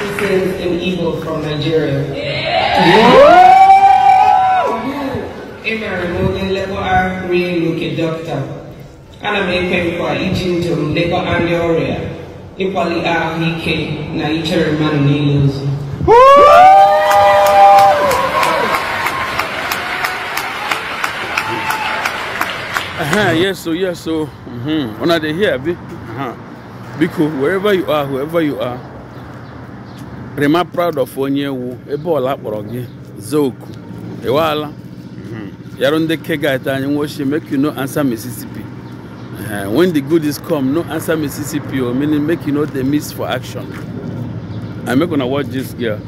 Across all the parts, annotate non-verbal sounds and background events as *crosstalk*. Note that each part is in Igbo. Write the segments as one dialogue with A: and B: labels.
A: This is an eagle from Nigeria. Emere m onye nlekọta rie n'oke dọkịta. Ana m ekwe nkwa iji ndụ m lekọta ndị ọrịa, ịkwali ahụike na ichere mmadụ niile ozi. Uh-huh,
B: yes, so yes, so mm-hmm. When are they here, be, uh-huh. because wherever you are, whoever you are, rema proud of onye wu ebe ọla kpọrọ gị zoku ịwala mhm. yarụ ndị kegit anyị nwochie make you no answer mississippi eh, when the good is come no answer mississippi o oh, meaning make you no dey miss for action i make una watch this girl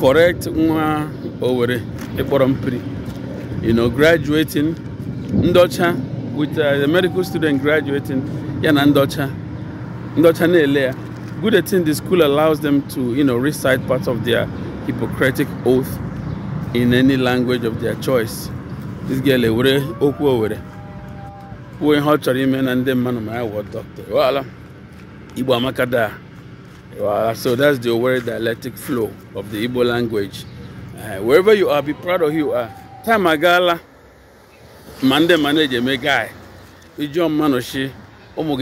B: correct nwa owere ịkpọrọ mpiri you know graduating ndị with uh, the medical student graduating ya na ndị ọcha ndị ọcha na-ele ya good thing the school allows them to, you know, recite parts of their Hippocratic oath in any language of their choice. This girl ewere eh, okwu owere kwuo ihe eh, ọ chọrọ ime na ndị mmadụ ma ya doctor? dọkịta ịwala Igbo amaka daa so that's the Owerri dialectic flow of the Igbo language uh, wherever you are be proud of who you are time agaala ma me mmadụ eji eme guy ijụọ no, oh,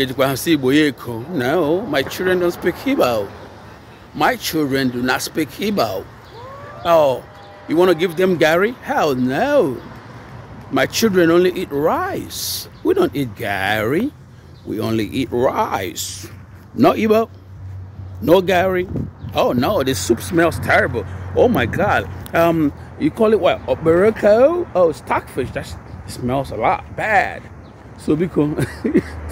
B: my children don't speak Hebrew. My children do not speak Hebrew. Oh, you want to give them Gary? Hell no. My children only eat rice. We don't eat Gary. We only eat rice. No Igbo, no Gary. Oh no, the soup smells terrible. Oh my God. Um, you call it what? Oberoko? Oh, stockfish. That smells a lot bad. So because *laughs*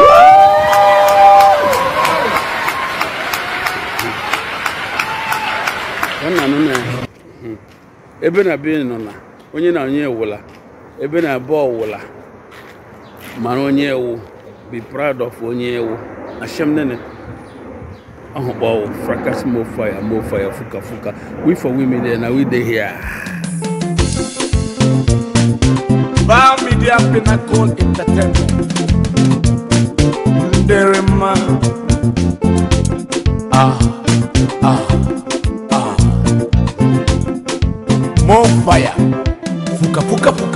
B: na ebe na be nọ na onye na onye wụla ebe na be ọwụla mara onye ewu be proud of onye ewu ashem nene ahụkpa ọwụ fracas mo fire mo fire fuka fuka we for women there na we dey here Bar Media Pinnacle Entertainment Nderema Ah Bonfire. Fuka fuka fuka.